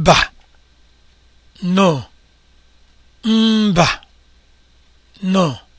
mba no mba no